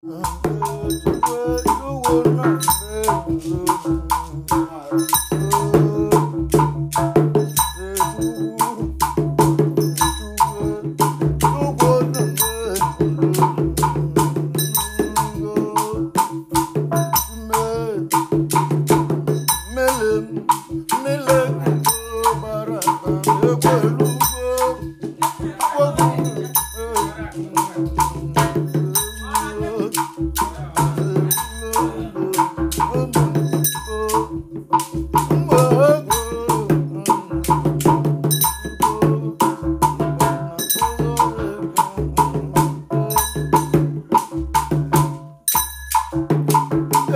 Melem, melem, bara, bara, bara, bara,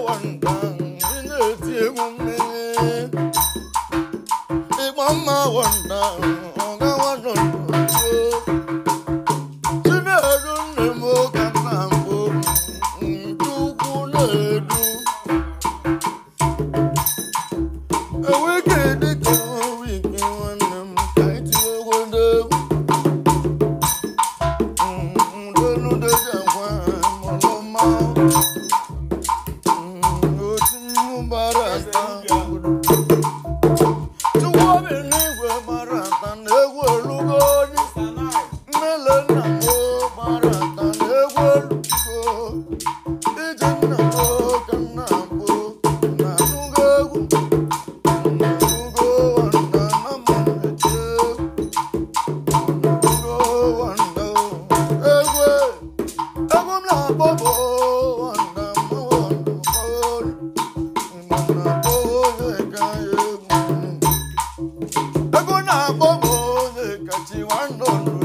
one she want to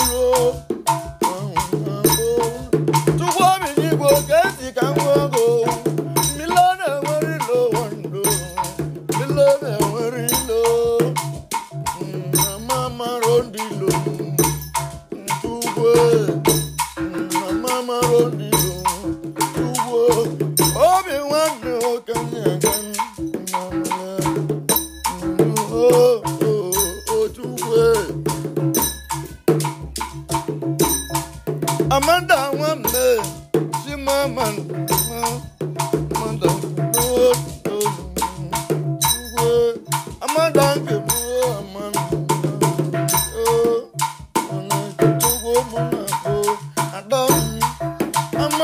tomorrow.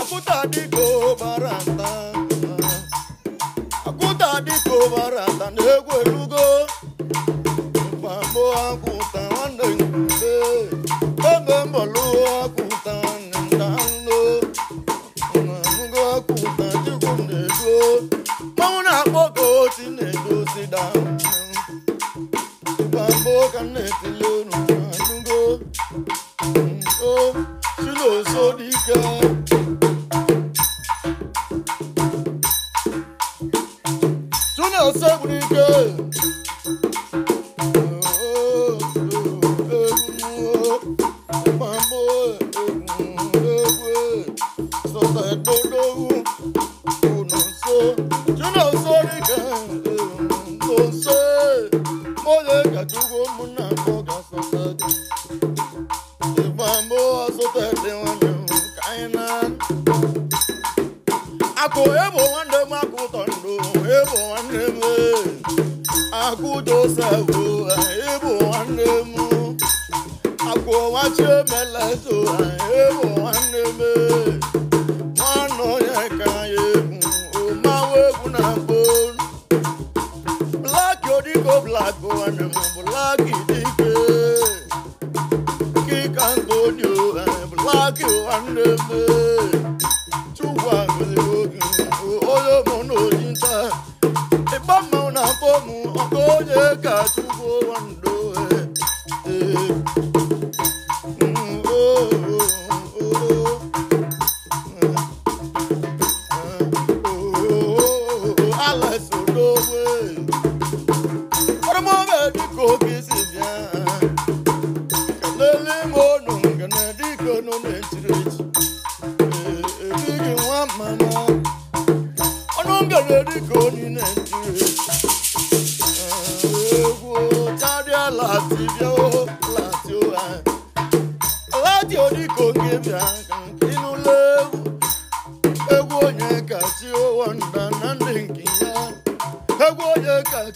akụta dịka akụta ụbara na-egwu erugo mpamo akụta nwanne mgbe ebe mbọlụ akụta nta nlo ọnụgo na-edo na ka na Eba mmanwụ na-akpọ mụ ọkọ onye ga-atụgbo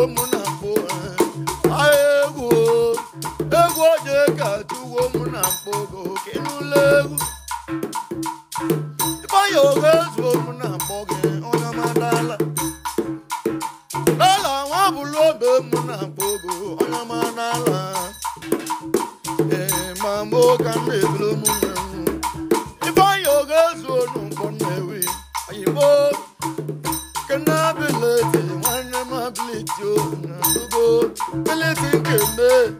egwu m na mkpụ ahịa ka tụwo m na mkpụ go kenụla egwu ifeanyị oge zuo m na madala lala nwa bụlụ obe m na mkpụ go onye madala ee ma Aletin günü